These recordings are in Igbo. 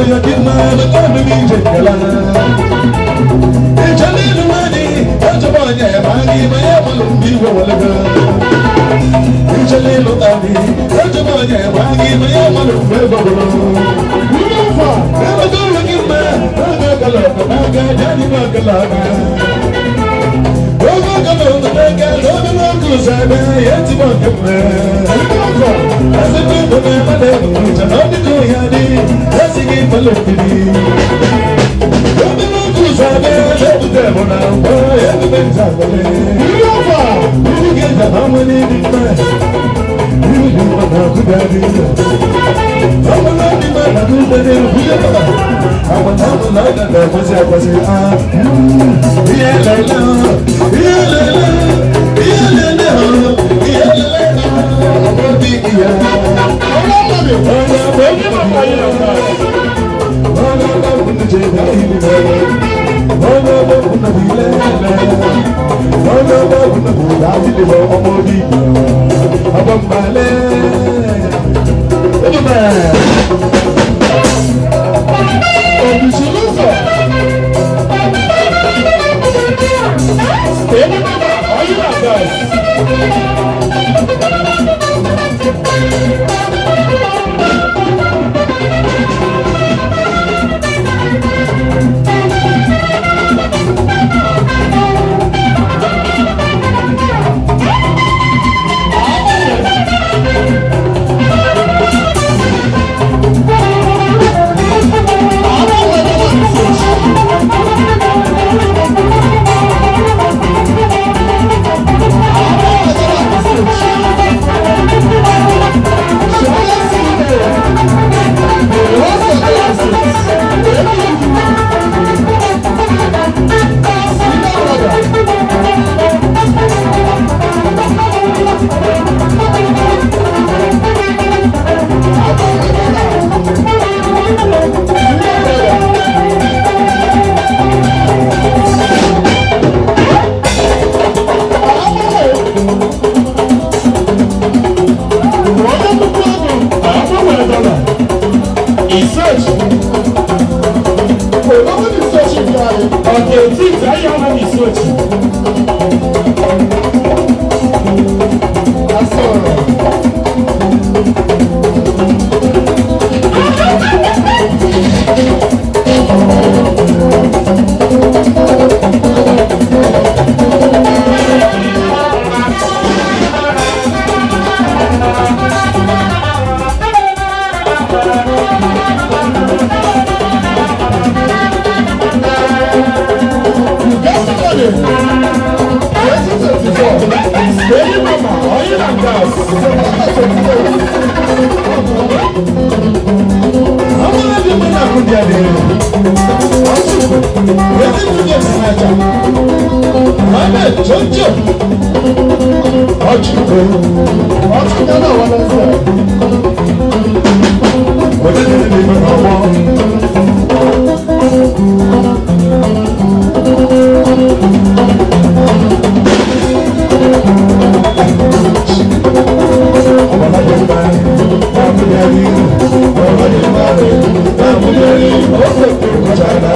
Ogo galo, ogo galo, sɛbɛ yɛti bɔ kɛmɛ asɛbɛ dɔbɛ mɛlɛ jana bi ko yadi ɛsigi mɛlɛ kiri yɛbi bɛ tu sɛbɛ yɛbi tɛ bɔna kɔ yɛbi bɛ ta kɔlɛ yɔfa yiri kɛ jana wɛni bi mɛ yiri bi ma na ku da bi mɛ ɔmɔ na bi ma na ku da bi mɛ kuyɛ kaba ọgbọ́n balẹ̀. ìṣèjì olówó ní ìṣèjì ní ààrẹ ọ̀dẹ̀ òtí ìdáyé ọmọ ní ìṣèjì. a twenty four èyí mama ọyí na gas september twenty four. Amúlẹ̀ bí mo náà kú di adé rẹ̀. Ọ̀ṣun yẹ́nì tún yẹ sí n'ájà. Mohammed tó ń jẹ́ ọ̀jù kò. Ọ̀ṣun kan náà wọlé.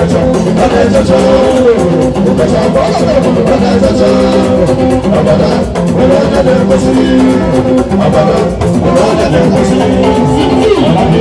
ẹjọ ọdẹ jọjọ òkèjọ ọgbọdọ ọdẹ jọjọ ọgbọdọ òwò ọdẹdẹ kọsí ọgbọdọ òwò ọdẹdẹ kọsí ọmọdé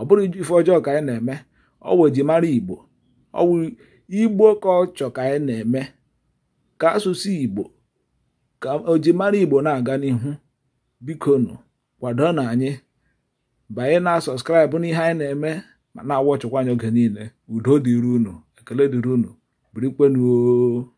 ọ bụrụ ife ọjọọ ka anyị na-eme ọwụ ejimara igbo ọwụ igbo ka ọ chọ ka anyị na-eme ka asụsụ igbo ka ojimara igbo na-aga n'ihu bikonu kwado na anyị banye na sọskraịbụ n'ihe anyị na-eme ma na-awachịkwa anya oge niile udo dịrị unu ekele dịrị unu birikwenuo